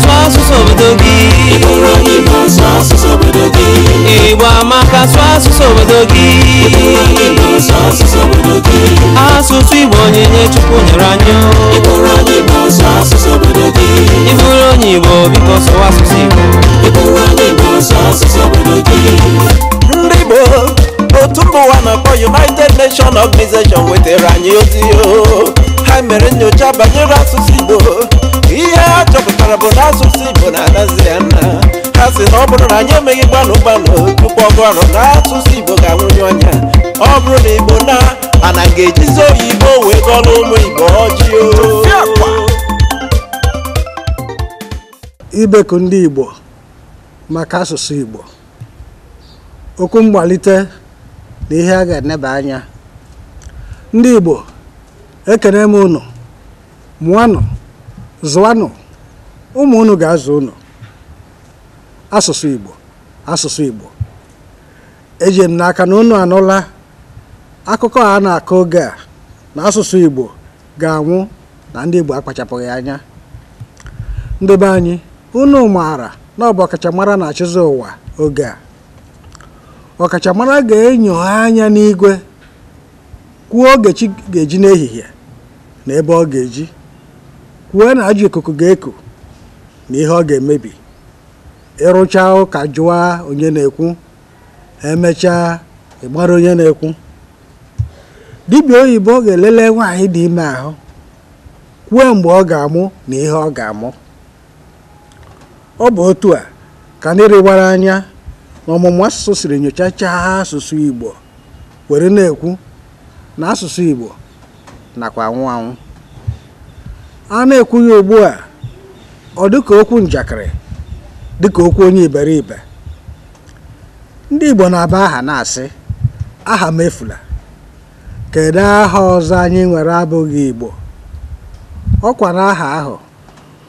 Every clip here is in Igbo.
swasu sobedogi Ikoro mibo swasu sobedogi Ibo amaka swasu sobedogi Ikoro mibo swasu sobedogi Asụsụ Igbo onyinye Chukwu nyere anyị Ikoro mibo swasu sobedogi Iburu onye Igbo biko sụwa asụsụ Igbo Ikoro mibo swasu sobedogi Ndị Igbo otu mba ụwa na-akpọ United Nations Organization wetara anyị ozi oh. ha mere nyocha banyere asụsụ Igbo ihe a chọpụtara pụtara bụ na asụsụ Igbo na-adazi ya nna ha si na ọ bụrụ na anyị emeghị gbanụ gbanụ tupu ọgụ na asụsụ Igbo ga-anwụnye ọnya ọ bụrụ na Igbo na anaghị ejizi oyibo wee gọlụ ụmụ Igbo ọjị ibeku ndị Igbo maka asụsụ Igbo okwu mgbalite na ihe a ga-eneba anya ndị Igbo ekene m unu mụanụ zụanụ ụmụ unu ga-azụ ụnụ asụsụ Igbo asụsụ Igbo eji m n'aka na ụnụ anụla akụkọ a na-akọ oge a na asụsụ Igbo ga-anwụ na ndị Igbo akpachapụghị anya ndebe anyị unu maara na ọ bụ ọkachamara na-achịzi ụwa oge a ọkachamara ga-enyoha anya n'igwe kwuo oge chi ga-eji n'ehihie na ebe ọ ga-eji kwuo na ajọ ikuku ga-eku na ihe ọ ga-emebi ịrụcha ụka jụwa onye na-ekwu emechaa ịgbara onye na-ekwu dibịa oyibo ga-elele nwaanyị dị ime ahụ kwue mgbe ọ ga-amụ na ihe ọ ga-amụ ọ bụ otu a ka ndị rịwara anya na ọmụmụ asụsụ siri nyochachaa ha asụsụ Igbo were na-ekwu na asụsụ Igbo nakwa anwụ anwụ a na-ekwu ya ugbu a ọ dịka okwu njakịrị dịka okwu onye iberibe ndị Igbo na-aba aha na-asị aha mefula" efula kedu aha ọzọ anyị nwere abụghị Igbo ọkwa na aha ahụ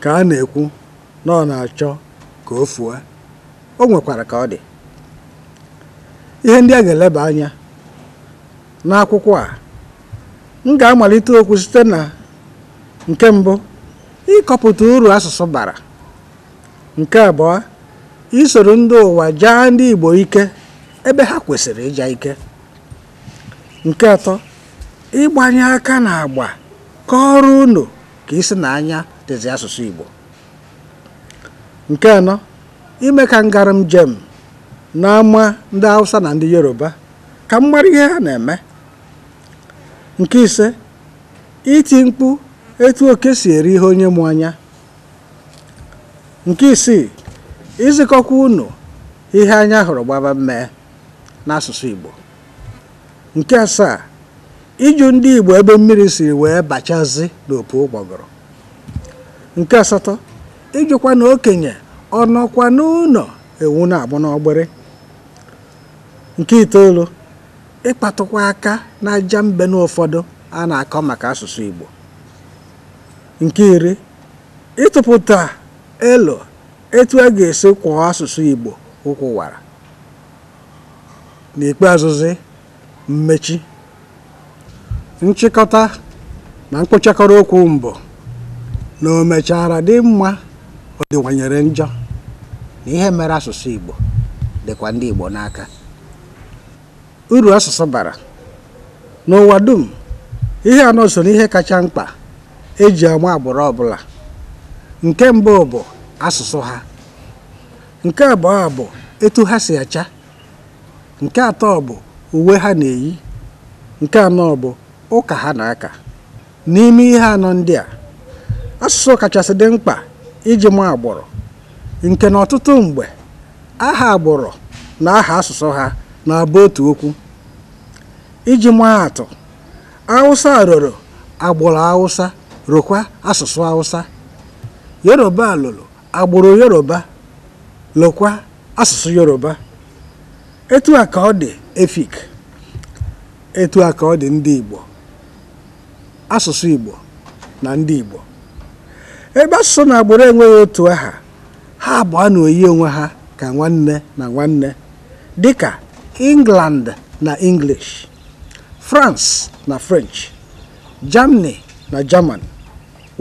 ka a na-ekwu na ọ na-achọ ka o fuo o nwekwara ka ọ dị ihe ndị a ga-eleba anya n'akwụkwọ a m ga-amalite okwu site na nke mbụ ịkọpụta uru asụsụ bara nke abụọ isoro ndị ụwa jaa ndị Igbo ike ebe ha kwesịrị ịja ike nke atọ ịgbanye aka na agba ka ọrụ unu ka isi na anya dịzi asụsụ Igbo nke anọ ime ka ngaram njem n'ama ndị Hausa na ndị Yoruba ka m ihe ha na-eme nke ise iti mkpu etu oke si eri ihe onye mụ anya nke isii izikọkwa unu ihe anya hụrụ gbaba mmee n'asụsụ Igbo nke asaa ịjụ ndị Igbo ebe mmiri siri wee bachazi n'opu ụgbọgọrọ nke asatọ ijụkwa na okenye ọnọkwa n'ụlọ ewu na-agbụ n'ọgbịrị nke itoolu ịkpatụkwa aka na aja mbe n'ụfọdụ a na-akọ maka asụsụ Igbo nke iri ịtụpụta elo etu a ga-esi kwụọ asụsụ Igbo ụkwụwara n'ikpeazụzi mmechi nchịkọta na mkpochakọrọ okwu mbụ na o mechara dị mma ọ dịwanyere njọ na ihe mere asụsụ Igbo dịkwa ndị Igbo n'aka uru asụsụ bara n'ụwa dum ihe anọ so n'ihe kacha mkpa eji ama agbụrụ ọbụla nke mbụ bụ asụsụ ha nke abụọ bụ etu ha si acha nke atọ bụ uwe ha na-eyi nke anọ bụ ụka ha na-aka n'ime ihe anọ ndị a asụsụ kachasị dị mkpa iji ma agbụrụ nke na ọtụtụ mgbe aha agbụrụ na aha asụsụ ha na-abụ otu okwu iji maa atụ awụsa roro agbụrụ awụsa rụkwa asụsụ Hausa Yoruba lụrụ agbụrụ Yoruba lụkwa asụsụ Yoruba etu a ka ọ dị Efik etu a ka ọ dị ndị Igbo asụsụ Igbo na ndị Igbo ebe asụsụ na agbụrụ enweghị otu aha ha abụọ na oyi onwe ha ka nwanne na nwanne dịka England na English France na French Germany na jaman.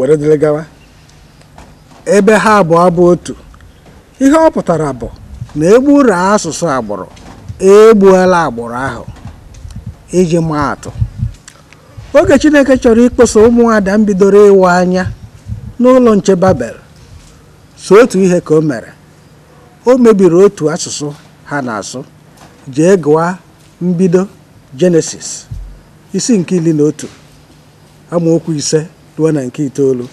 were dịrị gawa ebe ha abụọ bụ otu ihe ọ pụtara bụ na egburu asụsụ agbụrụ egbuola agbụrụ ahụ iji maa atụ oge Chineke chọrọ ịkpụsa ụmụada m bidoro ịwa anya n'ụlọ nche Babel so otu ihe ka o mere o mebiri otu asụsụ ha na-asụ jee gụwa mbido Jenesis isi nke iri na otu amaokwu ise ruo na nke itoolu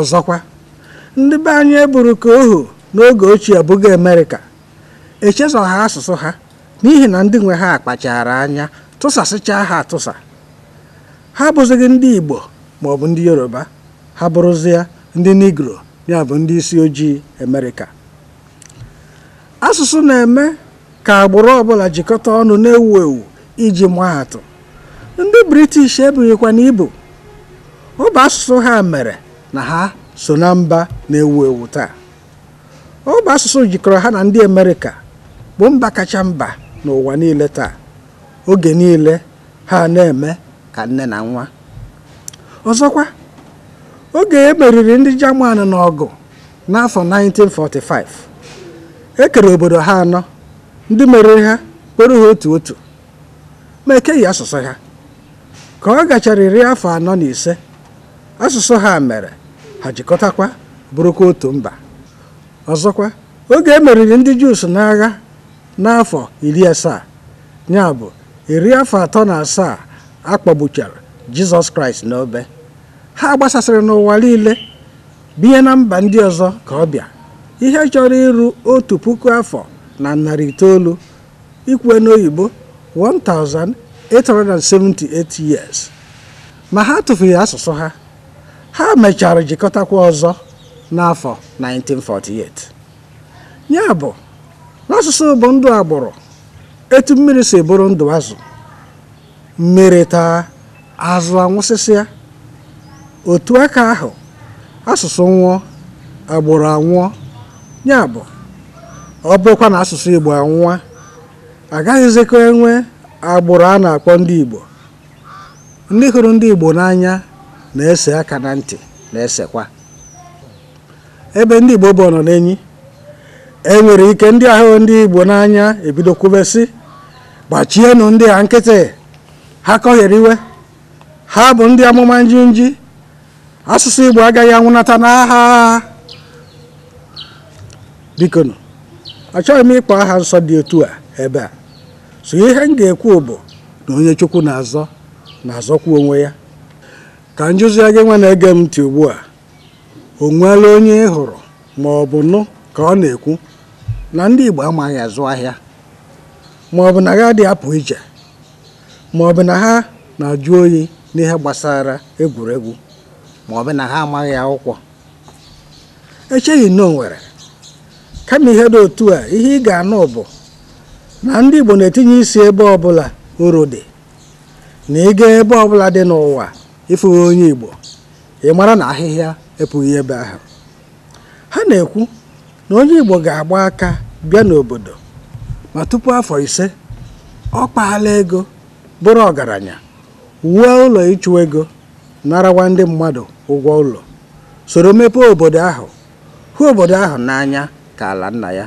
ọzọkwa ndị be anyị eburu ka ohu n'oge ochie abụghị amerịka ha asụsụ ha n'ihi na ndị nwe ha akpachara anya tụsasịchaa ha atụsa ha abụzighị ndị igbo ma ọ bụ ndị yoruba ha bụrụzie ndị nigro ya bụ ndị isi ojii amerịka asụsụ na-eme ka agbụrụ ọbụla jikọta ọnụ na-ewu ewu iji maa atụ ndị british ebughịkwa na ibu ọ asụsụ ha mere na ha so na mba na-ewu ewu taa ọ asụsụ jikọrọ ha na ndị Amerịka bụ mba kacha mba n'ụwa niile taa oge niile ha na-eme ka nne na nwa ọzọkwa oge e meriri ndị Jaman n'ọgụ n'afọ 1945 e kere obodo ha anọ ndị meriri ha kpere ha otu otu ma ekeghị asụsụ ha ka ọ gachara iri afọ anọ na ise asụsụ ha mere ha jikọtakwa bụrụkwa otu mba ọzọkwa oge e meriri ndị jus n'agha n'afọ iri asaa ya bụ iri afọ atọ na asaa akpọgbuchara jizọs kraịst n'obe ha gbasasịrị n'ụwa niile binye na mba ndị ọzọ ka ọ bịa ihe chọrọ iru otu puku afọ na narị itoolu ikwe n'oyibo 1878 years ma ha tụfuru asụsụ ha ha mechara jikọtakwa ọzọ n'afọ 1948 ya bụ n'asụsụ bụ ndụ agbụrụ etu mmiri si bụrụ ndụ azụ mmiri taa azụ anwụsịsịa otu aka ahụ asụsụ nwụọ agbụrụ anwụọ ya bụ ọ bụkwa na asụsụ Igbo anwụọ agaghịzikwa enwe agbụrụ a na-akpọ ndị Igbo ndị hụrụ ndị Igbo n'anya na-ese aka na ntị na-esekwa ebe ndị Igbo bụ nọ n'enyi enwere ike ndị ahụ ndị Igbo n'anya ebido kwubesi gbachienụ ndị a nkịtị ha kọghere iwe ha bụ ndị amụma njinji asụsụ Igbo agaghị anwụnata n'agha bikonu achọghị m ịkpọ aha nsọ dị otu a ebe a so ihe m ga-ekwu bụ na onye Chukwu na-azọ na-azọkwu onwe ya ka njụzia gị nwa na-ege m ntị ugbu a o nweela onye ị hụrụ ma ọ bụ nụ ka ọ na-ekwu na ndị Igbo amaghị azụ ahịa ma ọ bụ na ha dị apụ ije ma ọ bụ na ha na-ajụ oyi n'ihe gbasara egwuregwu ma ọ bụ na ha amaghị akwụkwọ echeghị na nwere kama ihe dị otu a ihe ị ga-anụ bụ na ndị Igbo na-etinye isi ebe ọbụla oro dị na ịga ebe ọbụla dị n'ụwa ịfụ onye Igbo ị mara na ahịhịa epụghị ebe ahụ ha na-ekwu na onye Igbo ga-agba aka bịa n'obodo ma tupu afọ ise ọ kpaala ego bụrụ ọgaranya wuo ụlọ ịchụ ego narawa ndị mmadụ ụgwọ ụlọ soro mepee obodo ahụ hụ obodo ahụ n'anya ka ala nna ya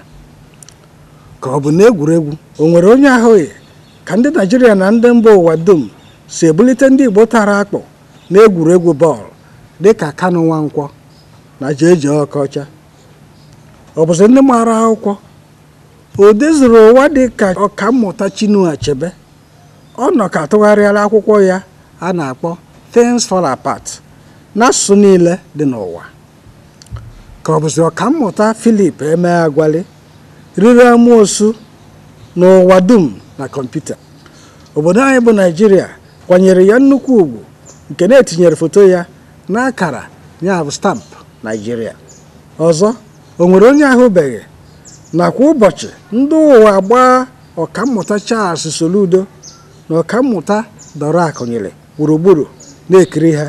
ka ọ bụ n'egwuregwu o nwere onye ahụghị ka ndị Naijiria na ndị mba ụwa dum si ebulite ndị Igbo tara akpụ n'egwuregwu bọọlụ dịka Kanu Nwankwọ na Jeje Okocha ọ bụzi ndị mara akwụkwọ o dezuru ụwa dịka ọkammụta Chinua Achebe ọ nọ ka tụgharịala akwụkwọ ya a na-akpọ Things Fall Apart n'asụsụ niile dị n'ụwa ka ọ bụzi ọkammụta filip eme Agwali riri amoosu n'ụwa dum na kọmputa obodo anyị bụ Naịjirịa kwanyere ya nnukwu ugwu nke na-etinyere foto ya n'akara ya bụ stampụ naijiria ọzọ o nwere onye ahụbeghị nakwa ụbọchị ndị ụwa gbaa ọkammụta Charles Soludo na ọkammụta dọrọ akụnyere gburugburu na-ekiri ha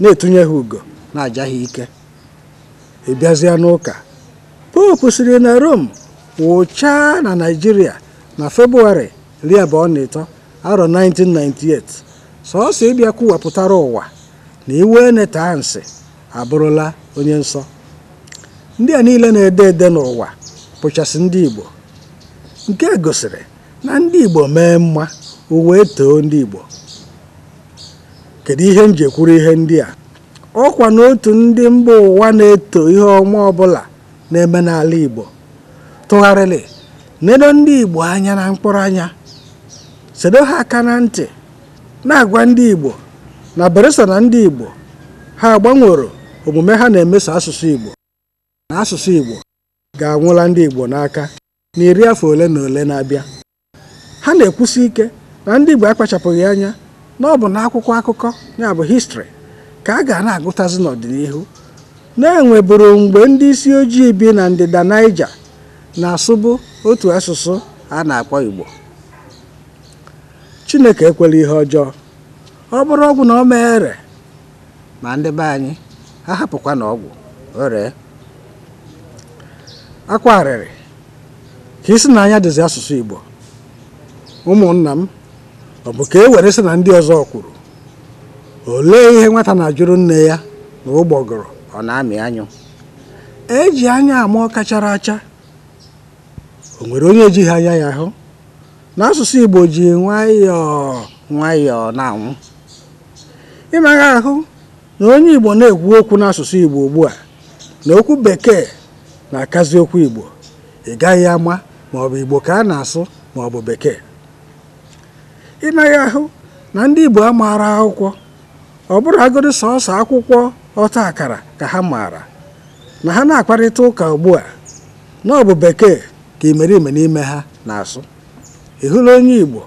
na-etunye ha ugo na-aja ha ike ịbịazịa n'ụka popu siri na Rome wụchaa na naijiria na febụwarị iri abụọ na ịtọ arọ 1998 sọsọ ịbịa kwuwapụtara ụwa na iwe eneta ansị abụrụla onye nsọ ndị a niile na-ede ede n'ụwa pụchasị ndị Igbo nke gosiri na ndị Igbo mee mma uwe too ndị Igbo kedu ihe m kwuru ihe ndị a ọkwa n'otu ndị mba ụwa na-eto ihe ọma ọbụla na-eme n'ala Igbo tụgharịrị nedo ndị Igbo anya na mkpụrụ anya sedo ha aka na ntị na-agwa ndị Igbo na Beresa na ndị Igbo ha agbanwere omume ha na-emeso asụsụ Igbo na asụsụ Igbo ga-anwụla ndị Igbo n'aka na iri afọ ole na ole na-abịa ha na-ekwusi ike na ndị Igbo akpachapụghị anya na ọ bụ n'akwụkwọ akụkọ ya bụ histrị ka a ga na-agụtazi n'ọdịnihu na-enweburu mgbe ndị isi ojii bi na ndịda Naija na-asụbụ otu asụsụ a na-akpọ Igbo chineke ekwela ihe ọjọọ ọ bụrụ ọgwụ na ọ mere ma ndị be anyị ha hapụkwa na ọgwụ o ka isi na anya dịzi asụsụ igbo ụmụnna m ọ bụ ka e were sị na ndị ọzọ kwuru olee ihe nwata na-ajụrụ nne ya na ụgbọgụrụ ọ na-amị anyụ eji anya ama ọ kachara acha o nwere onye ejighị anya ya hụ. n'asụsụ Igbo ji nwayọọ nwayọọ na-anwụ ịmara ahụ na onye Igbo na-ekwu okwu n'asụsụ Igbo ugbu a na okwu bekee na-akazi okwu Igbo ị gaghị ama ma ọ bụ Igbo ka a na-asụ ma ọ bụ bekee ịmara ahụ na ndị Igbo amaara akwụkwọ ọ bụrụ sọọsọ akwụkwọ ọta akara ka ha maara na ha na-akparịta ụka ugbu a na ọ bekee ka imerime n'ime ha na-asụ ị hụla onye Igbo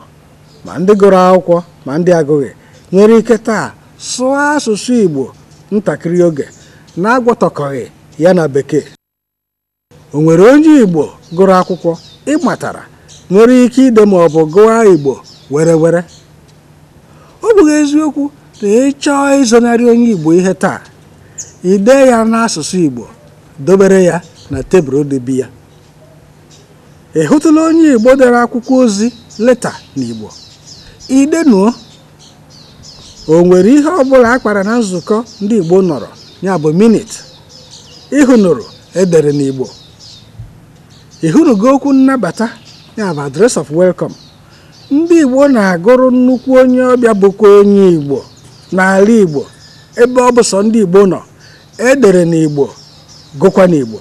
ma ndị gụrụ akwụkwọ ma ndị agụghị nwere ike taa sụọ asụsụ Igbo ntakịrị oge na-agwọtọkọghị ya na bekee o nwere onye Igbo gụrụ akwụkwọ ịmatara nwere ike ide ma ọ bụ gụwa Igbo were were ọ bụghị eziokwu na ị chọọ ịzọnarị onye Igbo ihe taa ide ya n'asụsụ Igbo dobere ya na tebụl dị ya ị hụtụla onye igbo dere akwụkwọ ozi leta na n'igbo idenuo o nwere ihe ọbụla akpara na nzukọ ndị igbo nọrọ ya bụ minit ịhụnụrụ edere n'igbo ịhụnugo okwu nnabata ya bụ adres of welcome ndị igbo na-agụrụ nnukwu onye ọbịa bụkwa onye igbo n'ala igbo ebe ọ bụ sọ ndị igbo nọ edere n'igbo gụkwa n'igbo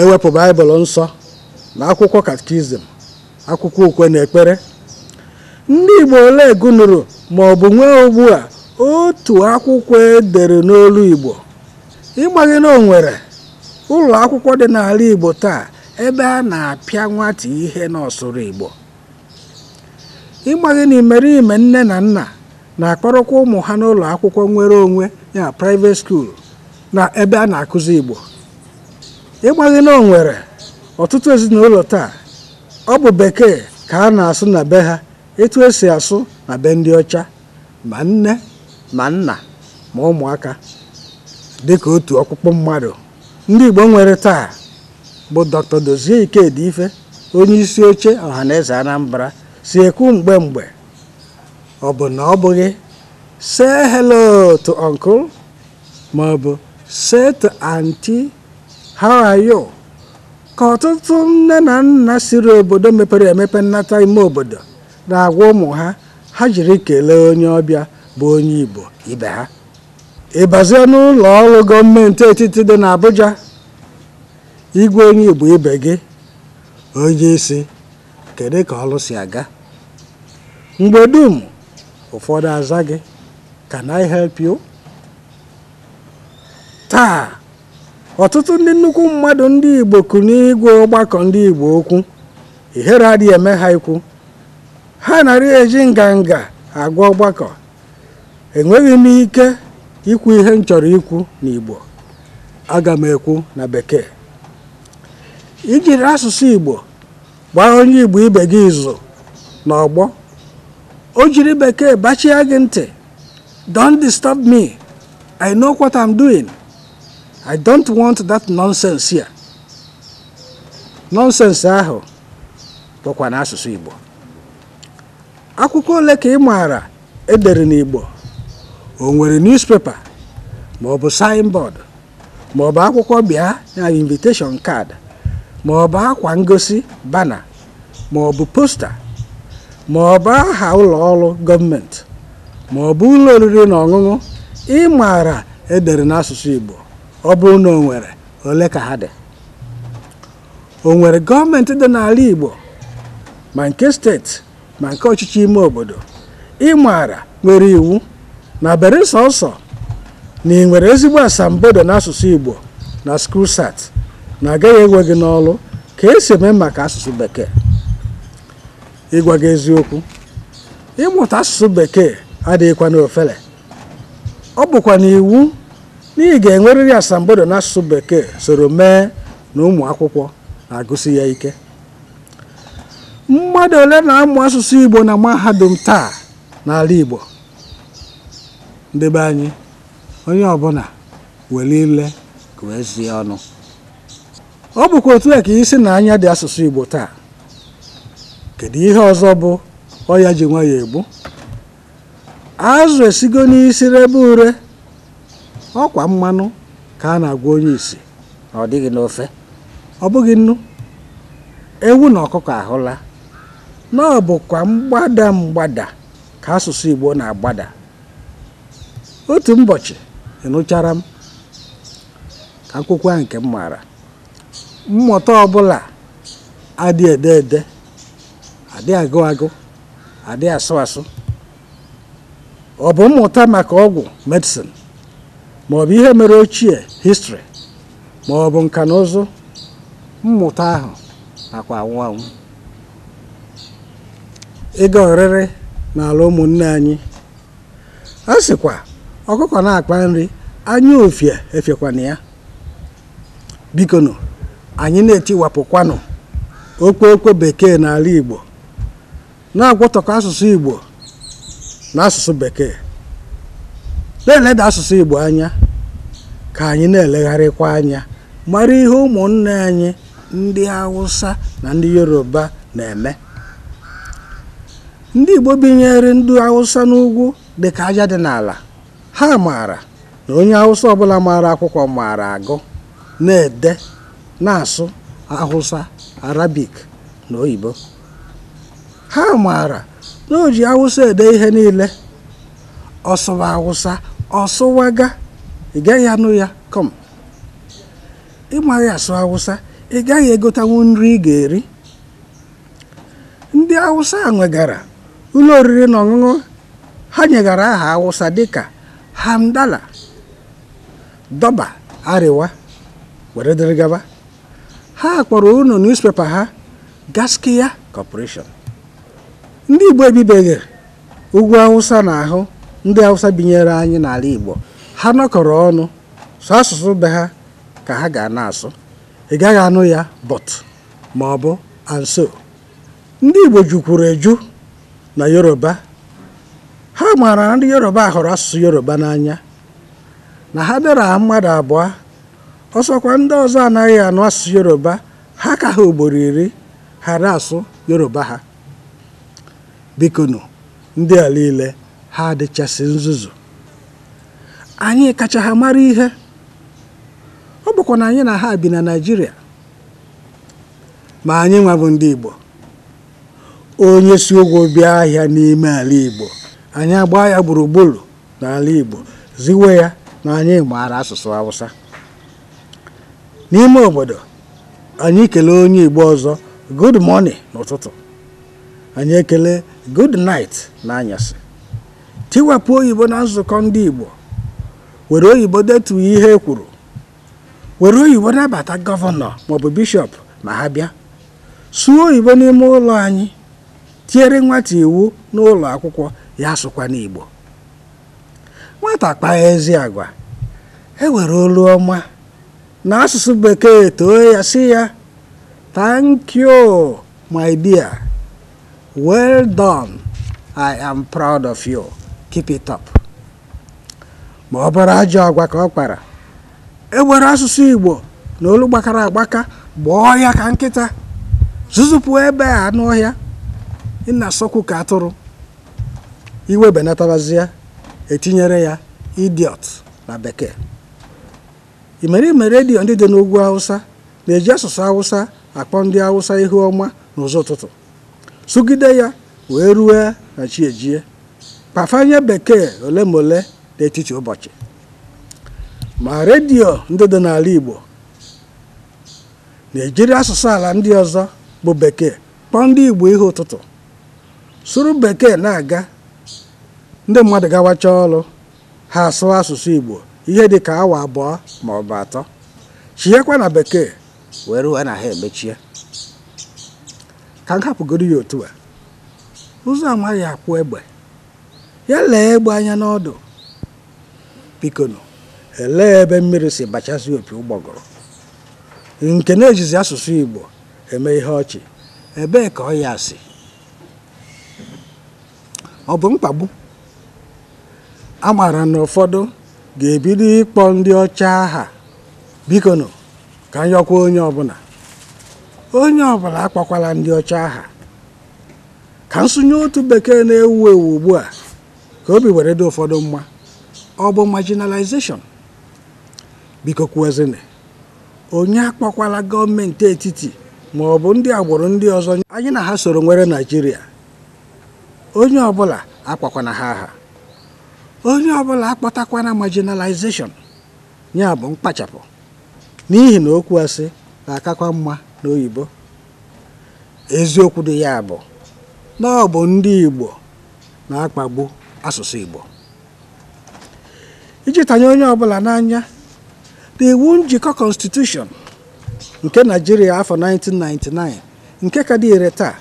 ewepụ baịbụl nsọ na akwụkwọ katikizim akwụkwọ ukwe na ekpere ndị igbo ole gụnụrụ ma ọ bụ nwee ugbu a otu akwụkwọ edere n'olu igbo ịgbaghị na onwere ụlọ akwụkwọ dị n'ala igbo taa ebe a na-apịa nwata ihe n'ọsụrụ igbo ịgbaghị na imerime nne na nna na-akpọrọkwa ụmụ ha n'ụlọ akwụkwọ nwere onwe ya private school na ebe a na-akụzi igbo ịgbaghị na nwere ọtụtụ ezinụlọ taa ọ bụ bekee ka a na-asụ na be ha etu esi asụ na be ndị ọcha ma nne ma nna ma ụmụaka dịka otu ọkpụkpụ mmadụ ndị Igbo nwere taa bụ Dr. Dozie Ikedi Ife onye isi oche eze Anambra si ekwu mgbe mgbe ọ bụ na ọ bụghị se hello to uncle ma ọ to you ka ọtụtụ nne na nna siri obodo mepere emepe nnata ime obodo na-agwa ụmụ ha ha jiri kelee onye ọbịa bụ onye Igbo ibe ha ịbazie n'ụlọ ọrụ gọọmenti etiti dị n'Abuja igwe onye Igbo ibe gị onye isi kedu ka ọrụ si aga mgbe dum ụfọdụ aza gị can I taa ọtụtụ ndị nnukwu mmadụ ndị igbo kụ n'igwe ọgbakọ ndị igbo okwu ihere adịghị eme ha ikwu ha narị eji nganga agwa ọgbakọ enweghị m ike ikwu ihe m chọrọ ikwu n'igbo aga m ekwu na bekee ijiri asụsụ igbo gbaa onye igbo ibe gị izu ọgbọ, o jiri bekee bachie gị ntị don't disturb me i know what i'm doing. I don't want that nonsense here. Nonsense ahụ bụkwa n'asụsụ Igbo. Akwụkwọ ole ka ị maara edere n'Igbo? O nwere newspaper ma ọ bụ signboard ma ọ bụ akwụkwọ bịa na invitation card ma ọ bụ akwa ngosi bana ma ọ bụ posta ma ọ bụ aha ụlọ ọrụ gọọmenti ma ọ bụ ụlọ oriri na ọṅụṅụ ị maara edere n'asụsụ Igbo. ọ bụrụ na o nwere ole ka ha dị o nwere gọọmenti dị n'ala Igbo ma nke steeti ma nke ọchịchị ime obodo ịmara nwere iwu na bere sọsọ na ị nwere ezigbo asambodo n'asụsụ Igbo na skrusat na agaghị ewe gị n'ọlụ ka esi eme maka asụsụ bekee ịgwa gị eziokwu ịmụta asụsụ bekee adịghịkwa n'ofele ọ bụkwa na iwu n'ihi ga-enwerịrị asambodo n'asụsụ bekee soro mee na ụmụ akwụkwọ na-agụsi ya ike mmadụ ole na-amụ asụsụ igbo na mahadum taa n'ala igbo ndebe anyị onye ọbụla were ile wee ọnụ ọ bụkwa otu a ka isi na anya dị asụsụ igbo taa kedu ihe ọzọ bụ ọya ji nwa egbu azụ esigo n'isi rebe ure ọkwa mmanụ ka a na-agwa onye isi na ọ dịghị n'ofe ọ bụghị nnu ewu na ọkụkọ ahụla na ọ mgbada mgbada ka asụsụ Igbo na-agbada otu ụbọchị ịnụchara m ka akwụkwọ nke m maara mmụta ọbụla adị ede ede adị agụ agụ adị asụ asụ ọ bụ mmụta maka ọgwụ medicine maọbụ ihe mere ochie histri maọbụ nka na ụzụ mmụta ahụ nakwa anwụ anwụ ịga oriri n'ala ụmụnne anyị a sịkwa ọkụkọ na-akpa nri anya ofie efekwana ya bikonu anyị na-etiwapụkwanụ okwe okwe bekee n'ala Igbo na-agwọtọkọ asụsụ Igbo na asụsụ bekee na-eleda asụsụ Igbo anya ka anyị na-elegharịkwa anya mara ihe ụmụnne anyị ndị Hausa na ndị Yoruba na-eme ndị Igbo binyere ndị Hausa n'ugwu dị ka aja dị n'ala ha maara na onye Hausa ọbụla maara akwụkwọ maara agụ na-ede na-asụ Hausa Arabik na oyibo ha maara na o ji ede ihe niile ọsụwa awụsa. ọsụwaga ị gaghị anụ ya kọm ịmaghị asụ awụsa ị gaghị egotanwu nri ị ga-eri ndị awụsa nwegara ụlọ oriri na ọṅụṅụ ha nyegara aha awụsa dịka hamdala dọba Ariwa were dịrị gaba ha kpọrọ ụlọ newspaper ha gaskiya corporation ndị igbo ebibeghị ugwu awụsa na ahụ ndị hausa binyere anyị n'ala igbo ha nọkọrọ ọnụ sọ asụsụ be ha ka ha ga anasụ asụ ị gaghị anụ ya bọt ma ọ bụ anso ndị igbo jukwuru eju na yoruba ha maara na ndị yoruba hụrụ asụsụ yoruba n'anya na ha dara mmadụ abụọ ọsọkwa ndị ọzọ anaghị anụ asụsụ yoruba ha ka ha ugboro iri ghara asụ yoruba ha bikonu ndị a niile ha adịchasị nzuzu anyị kacha ha mara ihe ọ bụkwa na anyị na ha bi na Naịjirịa ma anyị nwabụ ndị Igbo onye si ụgwọ bịa ahịa n'ime ala Igbo anyị agbaa ya gburugburu n'ala Igbo ziwe ya na anyị maara asụsụ Hausa n'ime obodo anyị kelee onye Igbo ọzọ good morning n'ụtụtụ anyị ekele good night n'anyasị tiwepụ oyibo na nzukọ ndị Igbo were oyibo detu ihe e kwuru were oyibo nabata gọvanọ maọbụ bishọp ma ha bịa sụọ oyibo n'ime ụlọ anyị tiere nwata iwu n'ụlọ akwụkwọ ya sụkwa n'Igbo nwata kpaa ezi agwa e were olu ọma na asụsụ bekee too ya si ya thank you my dear well done i am proud of you. keep ma ọ bụrụ ajọ agwa ka ọ kpara e asụsụ Igbo na olu gbakara agbaka gbaa ọhịa ka nkịta zụzụpụ ebe a anụ ọhịa ị na-asọkwu ka atụrụ iwe benatabazie etinyere ya idiot na bekee imerime redio ndị dị n'ugwu Hausa na-eji asụsụ Hausa akpọ ndị Hausa ihu ọma n'ụzọ ụtụtụ sụgide ya wee rue na chi ejie pafanye bekee ole ma ole n'etiti ụbọchị ma redio ndị dị n'ala Igbo na-ejiri asụsụ ala ndị ọzọ bụ bekee kpọọ ndị Igbo ihe ụtụtụ sụrụ bekee na-aga ndị mmadụ gawacha ọrụ ha asụ asụsụ Igbo ihe dị ka awa abụọ ma ọ bụ atọ chighekwa na bekee wee ruo na ha emechie ka m hapụgoro ya otu a ụzọ amaghị akwụ egbe ya lee egbe anya n'ọdụ bikonu elee ebe mmiri si bachazi opi ụgbọgụrụ? nke na-ejizi asụsụ Igbo eme ihe ọchị ebee ka ọ ya si ọ bụ mkpagbu a mara na ụfọdụ ga-ebido ịkpọ ndị ọcha aha bikonu ka nyọkwa onye ọbụla onye ọbụla akpọkwala ndị ọcha aha ka nsụnye otu bekee na-ewu ewu ugbu a ka obi were dị ụfọdụ mma ọ bụ marginalization biko kwuezina onye akpọkwala gọọmenti etiti ma ọ bụ ndị agbụrụ ndị ọzọ anyị na ha soro nwere naijiria onye ọbụla akpakwana ha aha onye ọbụla akpọtakwana marginalization ya bụ mkpachapụ n'ihi na okwu asị ga-akakwa mma n'oyibo eziokwu dị ya bụ na ọ bụ ndị igbo na-akpagbu asụsụ Igbo iji tanye onye ọbụla n'anya na iwu njikọ constitution nke naijiria afọ 1999 nke ka dị ire taa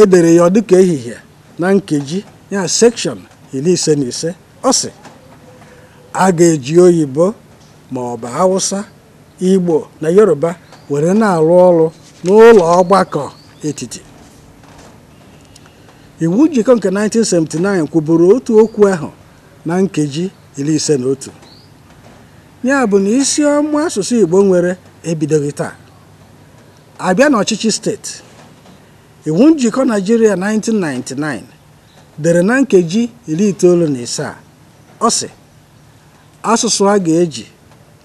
edere ya dịka ehihie na nkeji ya sekshọn iri ise na ise ọ si a ga-eji oyibo ma ọ bụ hausa igbo na yoruba were na-arụ ọrụ n'ụlọ ọgbakọ etiti iwu njikọ nke 1979 kwuburu otu okwu ahụ na nkeji iri ise na otu ya bụ na isi ọma asụsụ Igbo nwere ebidoghị taa abịa n'ọchịchị steeti iwu njikọ Naijiria 1999 dere na nkeji iri itoolu na ise ọ sị asụsụ a ga-eji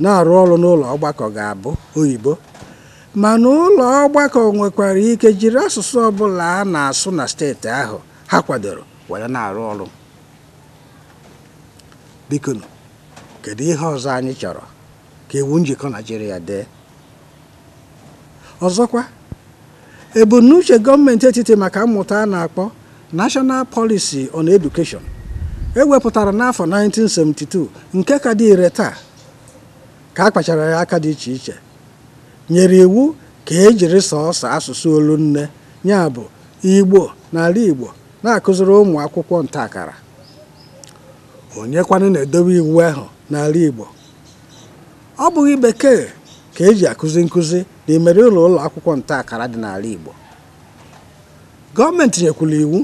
na-arụ ọrụ n'ụlọ ọgbakọ ga-abụ oyibo mana ụlọ ọgbakọ nwekwara ike jiri asụsụ ọbụla a na-asụ na steeti ahụ ha kwadoro were na-arụ ọrụ biko kedu ihe ọzọ anyị chọrọ ka iwu njikọ naijiria dee ọzọkwa ebumnuche gọọmenti etiti maka mmụta a na-akpọ National Policy on Education ewepụtara n'afọ 1972 nke ka dị ire taa ka a ya aka dị iche iche nyere iwu ka ejiri jiri sọọsọ asụsụ nne ya bụ Igbo n'ala Igbo na-akụziri ụmụ akwụkwọ ntaakara onye kwanụ na-edobe iwu ahụ n'ala Igbo ọ bụghị bekee ka eji akụzi nkụzi n'imeri ụlọ ụlọ akwụkwọ ntaakara dị n'ala Igbo gọọmenti nyekwula iwu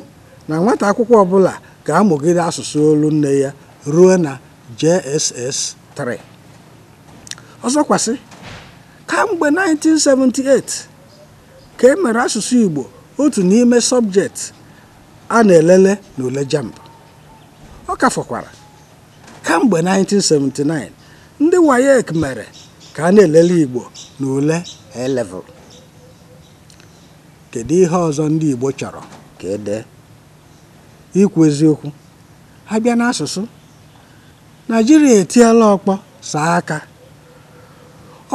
na nwata akwụkwọ ọbụla ga-amụgide asụsụ olu nne ya ruo na JSS 3 ọzọkwasị Kamgbe 1978 ka e mere asụsụ Igbo otu n'ime sọbjetị a na-elele n'ule JAMB. Ọ ka fọkwara, kamgbe 1979 ndị WAEC mere ka a na-elele Igbo n'ule a Kedu ihe ọzọ ndị Igbo chọrọ ka e dee? Ikwu eziokwu, ha bịa n'asụsụ, naijiria etiela ọkpọ saa aka.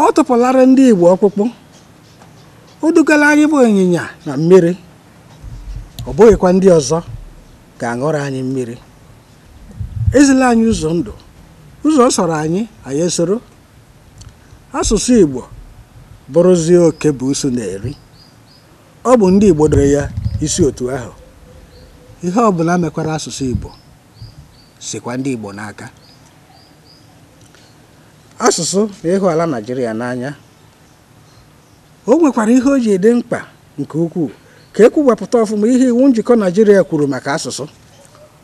ọ tụpụlara ndị Igbo ọkpụkpụ o dugala anyị bụ ịnyịnya na mmiri ọ bụghịkwa ndị ọzọ ga-aṅụrụ anyị mmiri ezila anyị ụzọ ndụ ụzọ sọrọ anyị anyị soro asụsụ Igbo bụrụzie oke buusu na-eri ọ bụ ndị Igbo dere ya isi otu ahụ ihe ọbụla mekwara asụsụ Igbo sikwa ndị Igbo n'aka asụsụ na ịhụ e ala Naijiria n'anya o nwekwara ihe o ji ede mkpa nke ukwuu ka e ọfụma ihe iwu njikọ Naijiria kwuru maka asụsụ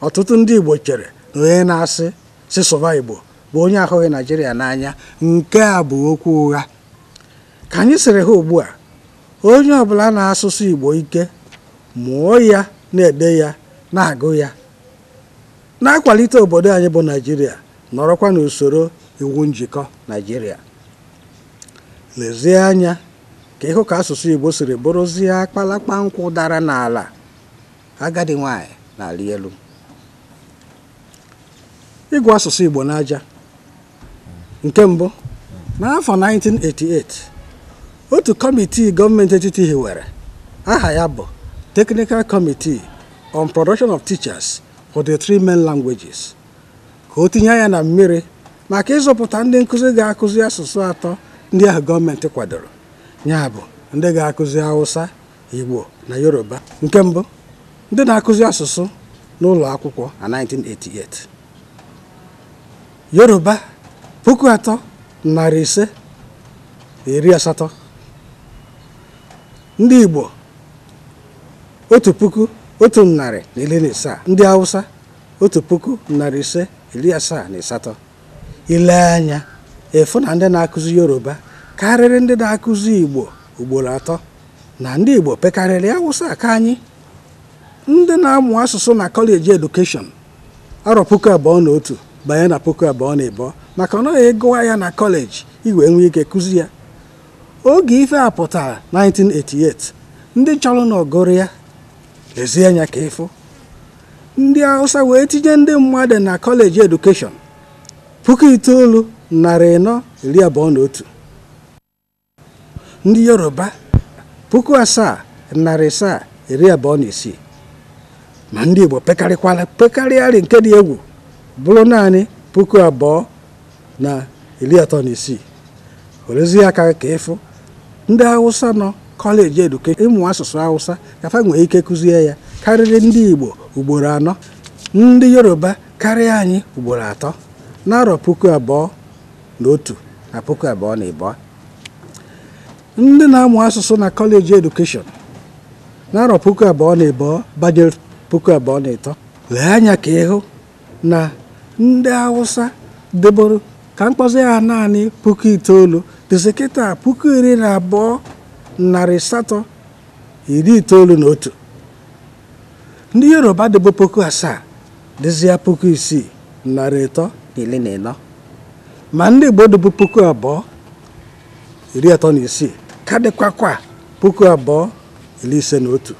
ọtụtụ ndị Igbo chere na onye na-asị sịsụba Igbo bụ onye ahụghị Naijiria n'anya nke a bụ okwu ụgha ka anyị sịrị ha ugbu a onye ọbụla na-asụsụ Igbo ike mụọ ya na-ede ya na-agụ ya na-akwalite obodo anyị bụ Naijiria nọrọkwa n'usoro iwu njikọ naijiria lezie anya ka ịhụ ka asụsụ igbo siri bụrụzie akpalakpa nkwụ dara n'ala agadi nwanyị na n'ala elu ịgụ asụsụ igbo n'aja nke mbụ n'afọ 1988 otu kọmitii gọọmenti etiti hiwere aha ya bụ Technical Committee on Production of Teachers for the Three Main Languages ka o tinye ya na mmiri maka ịzụpụta ndị nkụzi ga-akụzi asụsụ atọ ndị ahụ gọọmenti kwadoro ya bụ ndị ga-akụzi awụsa Igbo na Yoruba nke mbụ ndị na-akụzi asụsụ n'ụlọ akwụkwọ na 1988 Yoruba puku atọ narị ise iri asatọ ndị Igbo otu puku otu narị na iri na ise ndị awụsa otu puku narị ise iri asaa na asatọ ile anya efu na ndị na-akụzi yoruba karịrị ndị na-akụzi igbo ugboro atọ na ndị igbo pekarịrị awụsa aka anyị ndị na-amụ asụsụ na kọleji edukeshọn arọ puku abụọ na otu banye na puku abụọ na ịbụọ maka na ọ gụwa ya na kọleji iwe nwee ike kụzi ya oge ife a 1988 ndị chọrọ na ọgụrụ ya lezie anya ka ịfụ ndị awụsa wee tinye ndị mmadụ na kọleji edukeshọn puku itoolu narị ịnọ iri abụọ na otu ndị yoruba puku asaa narị asaa iri abụọ na isii ma ndị igbo pekarịkwala pekarịarị nke dị egwu bụrụ naanị puku abụọ na iri atọ na isii werezie aka ka ịfụ ndị hausa nọ kọleji edukeshọn ịmụ asụsụ hausa kafa nwee ike kụzie ya karịrị ndị igbo ugboro anọ ndị yoruba karịa anyị ugboro atọ n'arọ puku abụọ na otu na puku abụọ na ịbụọ ndị na-amụ asụsụ na kọleji edukeshọn n'arọ puku abụọ na ịbụọ banyere puku abụọ na ịtọ lee anya ka ịhụ na ndị Hausa deboro ka mkpọzi ha naanị puku itoolu dịsị puku iri na abụọ narị asatọ iri itoolu na otu ndị Yoruba debo puku asaa dịzịa puku isii narị ịtọ iri na ịnọ ma ndị Igbo dịbụ puku abụọ iri atọ na isii ka dịkwakwa puku abụọ iri ise na otu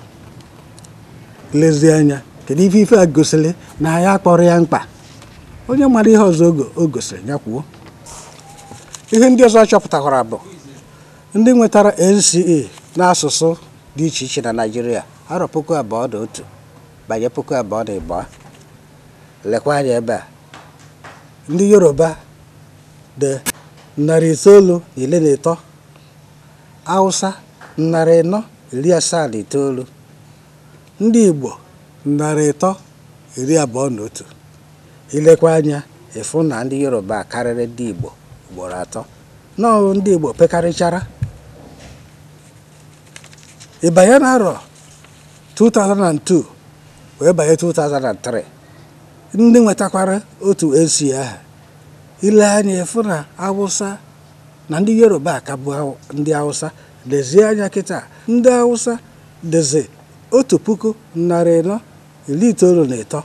lezie anya kedu ife ife a gosiri na ya akpọrọ ya mkpa onye mara ihe ọzọ o gosiri ya kwuo ihe ndị ọzọ chọpụtakwara bụ ndị nwetara NCE n'asụsụ dị iche iche na naijiria arọ puku abụọ na otu banye puku abụọ na ịbụọ lekwa anya ebe a ndị yoruba dị narị itoolu na ile na ịtọ hausa narị ịnọ iri asaa na itoolu ndị igbo narị ịtọ iri abụọ na otu ilekwa anya ịfụ na ndị yoruba karịrị ndị igbo ugboro atọ n'ọrụ ndị igbo pekarịchara ịbanye na-arọ 2002 wee banye 2003 ndị nwetakwara otu esi aha ile anya ịfụ na awụsa na ndị yoruba ka bụ ndị awụsa lezie anya kịta ndị awụsa dịzi otu puku narị ịnọ iri itoolu na ịtọ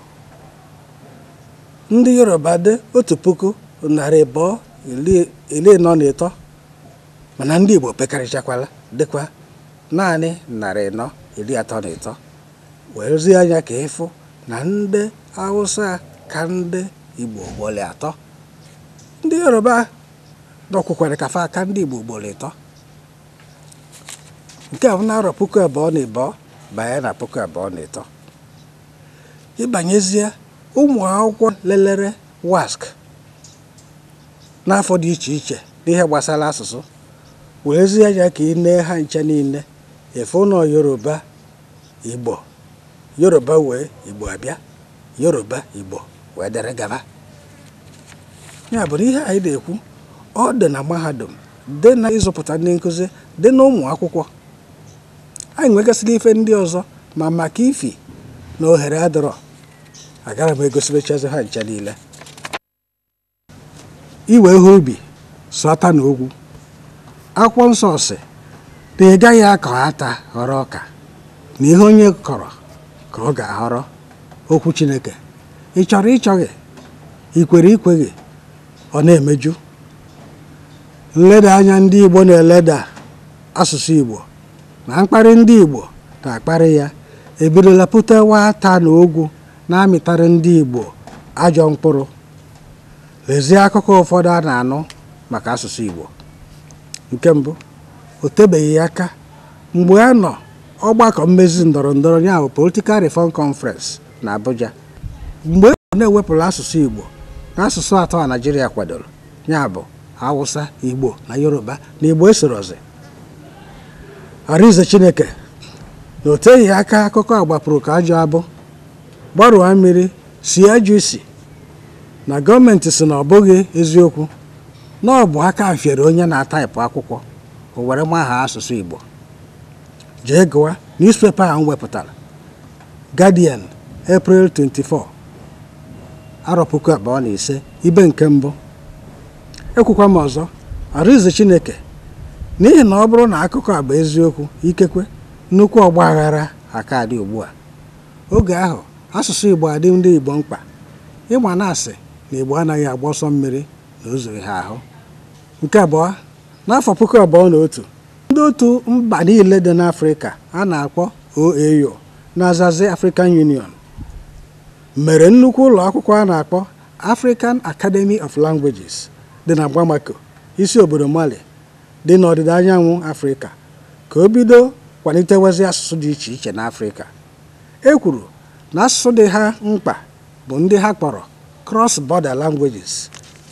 ndị yoruba dị otu puku narị abụọ iri ịnọ na ịtọ mana ndị igbo pekarịchakwala dịkwa naanị narị ịnọ iri atọ na ịtọ werezie anya ka ịfụ na ndị awụsa ka ndị Igbo ugboro atọ ndị Yoruba dọkwukwere kafa aka ndị Igbo ugboro ịtọ nke a bụ arọ puku abụọ na ịbụọ banye na puku abụọ na ịtọ ịbanyezie ụmụ akwụkwọ lelere wask n'afọ dị iche iche n'ihe gbasara asụsụ zie anya ka ị nee ha nche niile efe ụlọ Yoruba Igbo yoruba wee igbo abịa yoruba igbo wee dere gaba ya bụrụ ihe anyị na-ekwu ọ dị na mahadum dị na ịzụpụta ndị nkụzi dị na ụmụ akwụkwọ anyị nwegasịrị ife ndị ọzọ ma maka ifi na ohere adịrọ agara m egosibechazi ha nche niile iwe ihe ubi sọta na ogwu akwụkwọ nsọ si na ị gaghị akọ ata ghọrọ ọka na ihe onye kọrọ ka ọ ga ahọrọ okwu Chineke ị chọrọ ịchọghị ikwere ikwe ikweghị ọ na-emeju nleda anya ndị Igbo na-eleda asụsụ Igbo na mkparị ndị Igbo na-akparị ya ebidola pụtewa ata na ogwu na amịtara ndị Igbo ajọ mkpụrụ lezie akụkọ ụfọdụ a na-anụ maka asụsụ Igbo nke mbụ o tebeghị aka mgbe a nọ ọgbakọ mmezi ndọrọ ndọrọ ya bụ Political Reform Conference na Abuja mgbe e na-ewepụrụ asụsụ Igbo na asụsụ atọ a naijiria kwadoro ya bụ Hausa Igbo na Yoruba na Igbo esorozi Arize Chineke na o teghị aka akụkọ agbapụrụ ka ajọ abụ gbarụa mmiri si ajọ isi na gọọmenti si na ọ eziokwu na ọ aka fiere onye na-ataịpụ akwụkwọ o were maha asụsụ Igbo jee gụwa newspaper ahụ wepụtara Guardian April 24 arọ puku abụọ na ise ibe nke mbụ ekwukwa m ọzọ Arize Chineke n'ihi na ọ bụrụ na akụkọ agba eziokwu ikekwe nnukwu ọgba aghara aka ugbu a oge ahụ asụsụ Igbo adị ndị Igbo mkpa ịgba na-asị na Igbo anaghị agba ọsọ mmiri na o ha ahụ nke abụọ n'afọ puku abụọ na otu ndị otu mba niile dị n'afrịka a na-akpọ OAU na-azazi African Union mere nnukwu ụlọ akwụkwọ a na-akpọ African Academy of Languages dị na Bamako isi obodo Mali dị n'ọdịda anyanwụ afrịka ka o bido kwalitewezi asụsụ dị iche iche n'afrịka e kwuru na asụsụ dị ha mkpa bụ ndị ha kpọrọ cross-border languages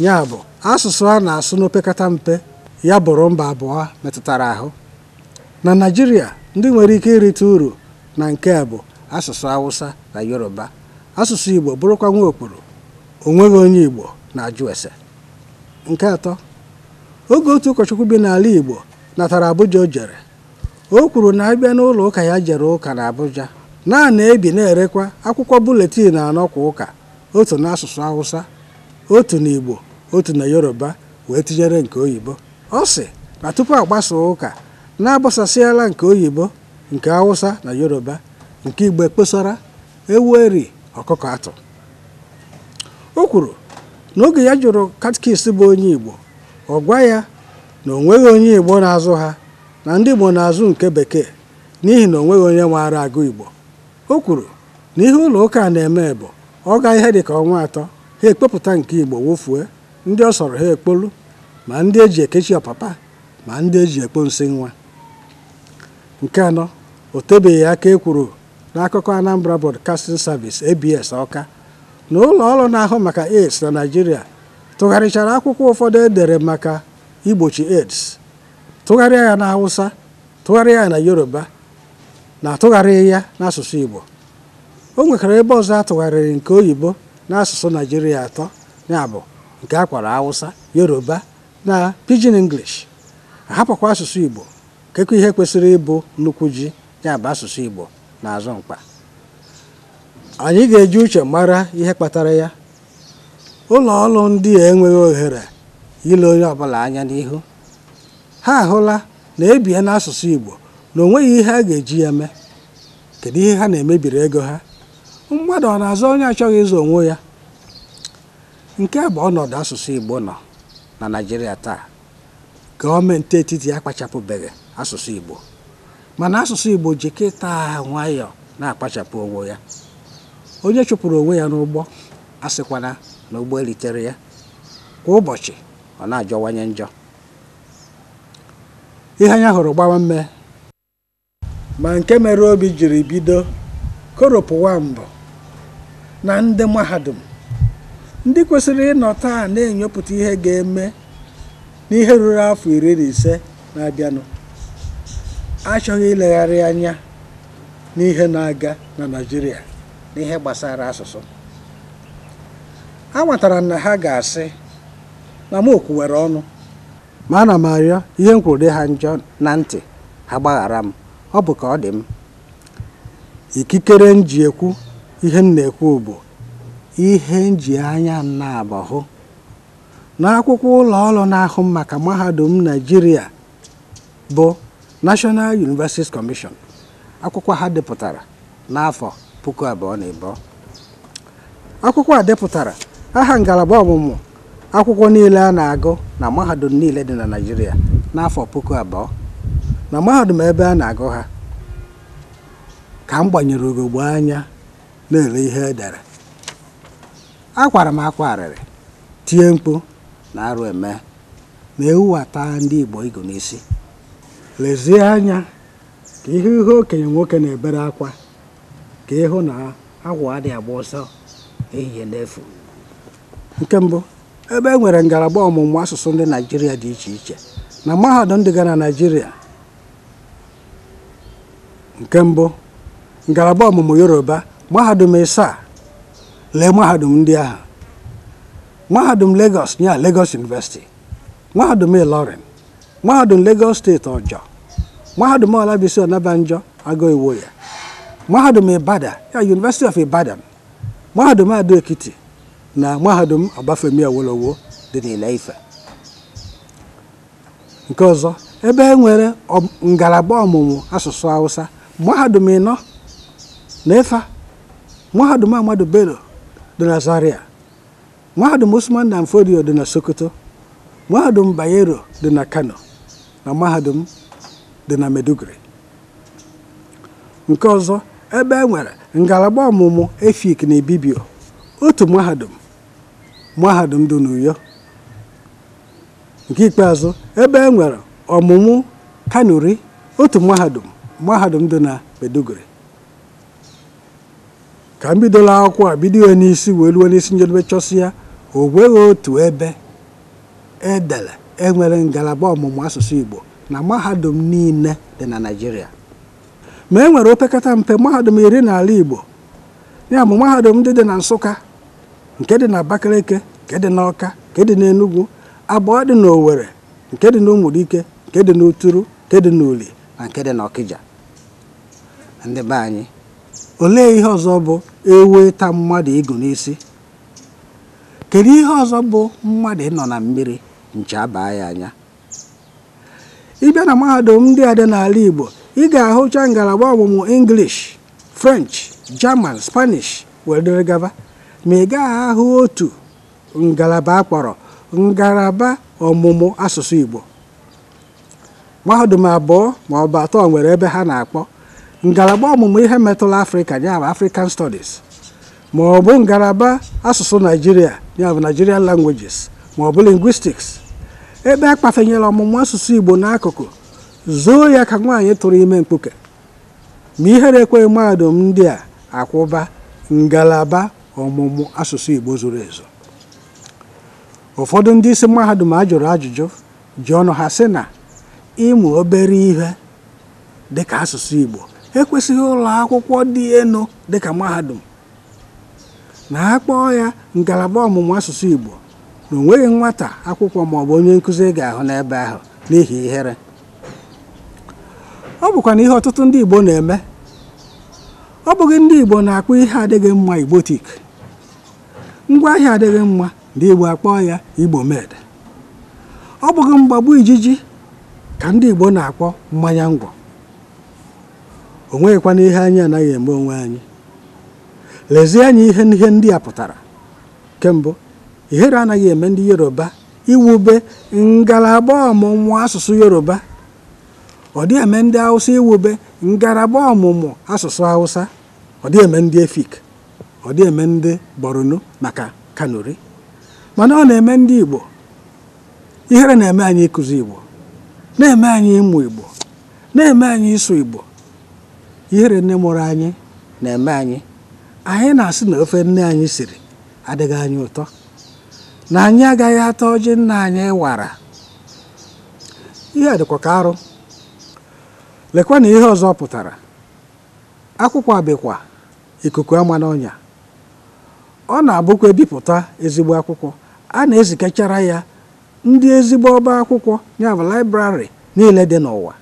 ya bụ asụsụ a na-asụ n'opekata mpe ya bụrụ mba abụọ metụtara ahụ na Naịjirịa ndị nwere ike irite uru na nke a bụ asụsụ awụsa na Yoruba asụsụ Igbo bụrụkwa nwa okpuru onweghị onye Igbo na-ajụ ese nke atọ oge otu ụkọchukwu bi n'ala Igbo natara Abuja o jere o kwuru na abịa n'ụlọ ụka ya jere ụka na Abuja naanị ebi na-erekwa akwụkwọ buletin anọ kwa ụka otu n'asụsụ awụsa otu na Igbo otu na Yoruba wee tinyere nke oyibo ọ sị na tupu agbasaa ụka na-agbasasịala nke oyibo nke hausa na yoruba nke igbo kpesara ewu eri ọkụkọ atụ o kwuru na oge ya jụrụ katkist bụ onye igbo ọ gwa ya na onweghị onye igbo na-azụ ha na ndị igbo na-azụ nke bekee n'ihi na onweghị onye maara agụ igbo o kwuru na ihe ụlọ ụka na-eme bụ ọ gaa ihe ka ọnwa atọ ha ekpepụta nke igbo wofue ndị ọ sọrọ ha ekpolu ma ndị eji ekechi ọpapa ma ndị eji ekpo nsị nwa nke anọ o tebeghị aka ekwuru n'akụkọ Anambra Broadcasting Service ABS Ọka na ụlọ ọrụ na-ahụ maka AIDS na Naịjirịa tụgharịchara akwụkwọ ụfọdụ edere maka igbochi AIDS tụgharịa ya na tụgharịa ya na Yoruba na atụgharịghị ya n'asụsụ Igbo o nwekwara ebe ọzọ atụgharịrị nke oyibo n'asụsụ naijiria atọ ya bụ nke akwara Hausa Yoruba na pidgin english hapụkwa asụsụ igbo kekwa ihe kwesịrị ịbụ nnukwu ji ya bụ asụsụ igbo na-azọ mkpa anyị ga-eji uche mara ihe kpatara ya ụlọ ọrụ ndị a enweghị ohere ile onye ọbụla anya n'ihu ha ahụla na ebie n'asụsụ igbo na onweghị ihe a ga-eji ya mee kedu ihe ha na-emebiri ego ha mmadụ ọ na azụ onye achọghị ịzụ onwe ya nke bụ ọnọdụ asụsụ igbo nọ na Naịjirịa taa gọọmenti etiti akpachapụbeghị asụsụ Igbo mana asụsụ Igbo ji kịta nwayọ na-akpachapụ onwe ya onye chụpụrụ onwe ya n'ụgbọ asịkwana na ụgbọ elitere ya kwa ụbọchị ọ na-ajọwanye njọ ihe anya hụrụ gbawa mme ma nke mere obi jiri bido koropụwa mbụ na ndị mahadum ndị kwesịrị ịnọ taa na-enyopụta ihe ga-eme n'ihe ruru afọ iri na ise na-abịanụ achọghị ilegharị anya n'ihe na-aga na Naịjirịa n'ihe gbasara asụsụ a m na ha ga-asị na m okwuwere ọnụ ma ana m arịọ ihe nkwụrụ ha njọ na ntị ha gbaghara m ọ bụ ka ọ dị m ikikere m ji ekwu ihe m na-ekwu bụ ihe njianya anya na n'akwụkwọ ụlọ ọrụ na-ahụ maka mahadum Naijiria bụ National Universities Commission akwụkwọ ha depụtara n'afọ puku abụọ na ịbụọ akwụkwọ a depụtara aha ngalaba ọmụmụ akwụkwọ niile a na-agụ na mahadum niile dị na naijiria n'afọ puku abụọ na mahadum ebe a na-agụ ha ka m gbanyere ugogbe anya na-ele ihe edere akwara m akwa arịrị tie mkpu na arụ eme na-ewuwata ndị Igbo igo n'isi lezie anya ka ihe ihe okenye nwoke na-ebere akwa ka ịhụ na agwa dị agba ọsọ ehihie n'efu nke mbụ ebe e nwere ngalaba ọmụmụ asụsụ ndị Naịjirịa dị iche iche na mahadum ga na nke mbụ ngalaba ọmụmụ Yoruba mahadum ịsaa lee mahadum ndị ahụ mahadum Lagos ya Lagos University mahadum Ilorin mahadum Lagos steeti ọjọ mahadum Olabisi Onabanjo Agụ ya mahadum Ibadan ya University of Ibadan mahadum Ado Ekiti na mahadum Obafemi Awolowo dị n'Ile-Ife nke ọzọ ebe e nwere ngalaba ọmụmụ asụsụ Hausa mahadum ịnọ na Ifa mahadum Ahmadu Bello dị na Zaria mahadum Usman na Fodio dị na Sokoto mahadum Bayero dị na Kano na mahadum dị na Meduguri nke ọzọ ebe e nwere ngalaba ọmụmụ efik na Ibibio otu mahadum mahadum dị n'Uyo nke ikpeazụ ebe e nwere ọmụmụ kanuri otu mahadum mahadum dị na Meduguri ka m bidola akwụkwọ a bido ya n'isi wee ruo n'isi njedebe chọsi ya o nweghị otu ebe edere enwere ngalaba ọmụmụ asụsụ Igbo na mahadum niile dị na Naịjirịa ma e nwere opekata mpe mahadum iri na ala Igbo ya bụ mahadum ndị dị na Nsụka nke dị na Abakaliki nke dị na Ọka nke dị na Enugu abụọ dị na nke dị na nke dị na nke dị na Uli na nke dị na ndị be anyị olee ihe ọzọ bụ ewe ịta mmadụ ịgụ n'isi kedu ihe ọzọ bụ mmadụ nọ na mmiri nche abaa ya anya ịbịa na mahadum ndị adị n'ala Igbo ị ga-ahụcha ngalaba ọmụmụ English French German Spanish were gaba ma ị gaghị ahụ otu ngalaba akpọrọ ngalaba ọmụmụ asụsụ Igbo mahadum abụọ ma atọ nwere ebe ha na-akpọ ngalaba ọmụmụ ihe metụrụ afrịka ya bụ african studies ma ọ bụ ngalaba asụsụ naijiria ya bụ nigerian languages ma ọ bụ linguistics ebe a kpafenyere ọmụmụ asụsụ igbo n'akụkụ zoo ya ka nwaanyị tụrụ ime mkpuke ma ihere ekweghị mahadum ndị a akwụba ngalaba ọmụmụ asụsụ igbo zuru ezu ụfọdụ ndị isi mahadum a jụrụ ajụjụ ji ọnụ ha sị na ịmụ obere ihe dịka asụsụ igbo ekwesịghị ụlọ akwụkwọ dị elu dịka mahadum na a kpọọ ya ngalaba ọmụmụ asụsụ Igbo na onweghị nwata akwụkwọ maọbụ onye nkụzi ga-ahụ n'ebe ahụ n'ihi ihere ọ bụkwa na ihe ọtụtụ ndị Igbo na-eme ọ bụghị ndị Igbo na-akpọ ihe adịghị mma Igbotik ngwaahịa adịghị mma ndị Igbo akpọọ ya Igbo med ọ bụghị mgbagbu ijiji ka ndị Igbo na-akpọ mmanya ngwọ o nweghịkwana ihe anyị anaghị eme onwe anyị lezie anya ihe ihe ndị a pụtara kembụ ihere anaghị eme ndị yoruba iwube ngalaba ọmụmụ asụsụ yoruba ọ dị eme ndị hausa iwube ngalaba ọmụmụ asụsụ hausa ọ dị eme ndị efik ọ dị eme ndị borno maka kanuri mana ọ na-eme ndị igbo ihere na-eme anyị ịkụzi igbo na-eme anyị ịmụ igbo na-eme anyị ịsụ igbo ihere nne mụrụ anyị na-eme anyị anyị na-asị na ofe nne anyị siri adịghị anyị ụtọ na anyị agaghị ata ọjị nna anyị wara ihe dịkwa ka arụ lekwa na ihe ọzọ pụtara akwụkwọ abịkwa ikuku ama n'ọnya ọ na-abụkwa ebipụta ezigbo akwụkwọ a na-ezikechara ya ndị ezigbo ọba akwụkwọ ya niile dị n'ụwa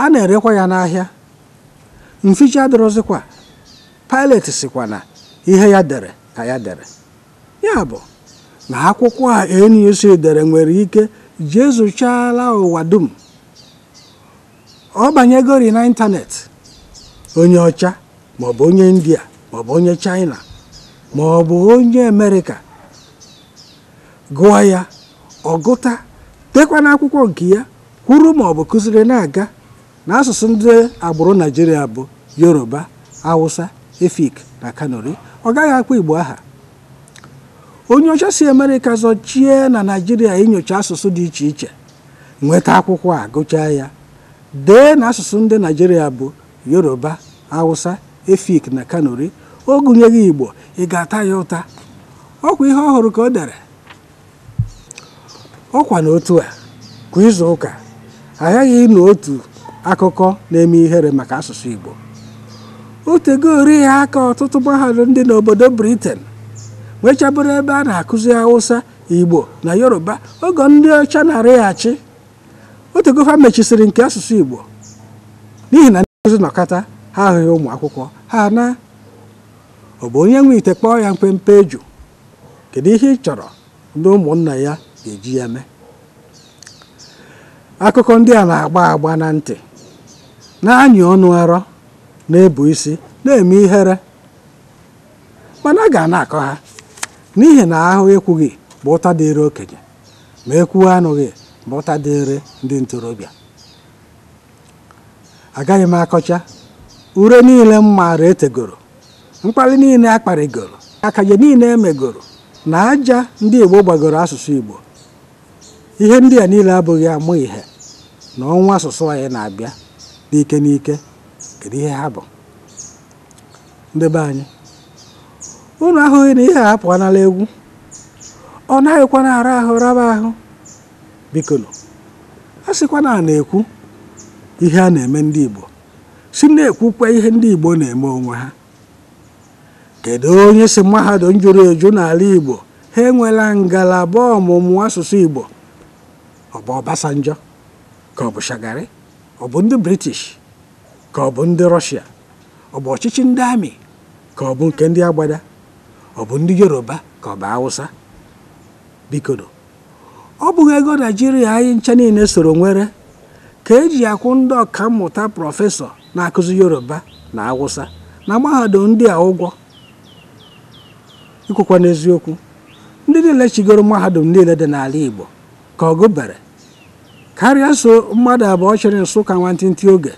a na-erekwa ya n'ahịa mficha adịrọzikwa pilet sikwa na ihe ya dere ka ya dere ya bụ na akwụkwọ a NUC e dere nwere ike jee zụchala ụwa dum ọ banyegori na ịntanetị onye ọcha maọbụ onye india maọbụ onye china maọbụ onye amerịka gụọ ya ọgụta tekwa n'akwụkwọ nke ya kwuru maọbụ kụziri na-aga na asụsụ ndị agbụrụ naijiria bụ yoruba awụsa efik na kanuri ọ gaghị akpọ igbo aha onye ọcha si amerịka zọchie na naijiria inyocha asụsụ dị iche iche nweta akwụkwọ a gụchaa ya dee na asụsụ ndị naijiria bụ yoruba awụsa efik na kanori o gụnyeghị igbo ị ga-ata ya ụta ọkwa ihe ọhụrụ ka o dere ọkwa na a kwa izu ụka aghaghị ịnụ otu akụkọ na-eme ihere maka asụsụ Igbo otego ya aka ọtụtụ mahadum dị n'obodo Britain nwechabụrụ ebe a na-akụzi Hausa Igbo na Yoruba oge ndị ọcha na-arịghachi otegofa mechisiri nke asụsụ Igbo n'ihi na ndị nkụzi nọkata ha ahụghị ụmụ akwụkwọ ha na ọ bụ onye nwe ite kpọọ ya mpempe eju kedu ihe ị chọrọ ndị ụmụnna ya ga-eji ya mee akụkọ ndị a na-agba agba na ntị na-anyị ọnụ arọ na-ebu isi na-eme ihere mana a ga na-akọ ha n'ihi na ahụ ekwughị bụ ụta dịịrị okenye ma ekwuo anụghị bụ ụta dịịrị ndị ntorobịa agaghị m akọcha ure niile m maara etegoro mkpali niile akparịgoro akaje niile emegoro na aja ndị Igbo gbagoro asụsụ Igbo ihe ndị a niile abụghị amụ ihe na ọnwa asụsụ anyị na-abịa n'ike n'ike kedu ihe ha bụ ndị be anyị unu ahụghị na ihe apụ anala egwu ọ naghịkwa na ara ahụ raba ahụ biko a sịkwa na na-ekwu ihe a na-eme ndị Igbo si na-ekwukwa ihe ndị Igbo na-eme onwe ha kedu onye si mahadum jụrụ eju n'ala Igbo ha enwela ngalaba ọmụmụ asụsụ Igbo ọ bụ Ọbasanjọ ka ọ bụ Shagari ọ bụ ndị british ka ọ bụ ndị rọshia ọ bụ ọchịchị ndị amị ka ọ bụ nke ndị agbada ọ bụ ndị yoruba ka ọ bụ awụsa bikodo ọ bụghị ego naijiria anyị ncha niile soro nwere ka eji akwụ ndị ọka mmụta prọfesọ na-akụzi yoruba na awụsa na mahadum ndị a ụgwọ ikwukwa n'eziokwu ndị niile chigoro mahadum niile dị n'ala igbo ka ọ gụbere karịa so mmadụ abụọ chịrị nsụka nwantịntị oge